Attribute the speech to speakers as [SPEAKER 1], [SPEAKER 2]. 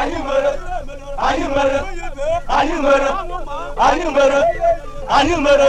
[SPEAKER 1] anyị mere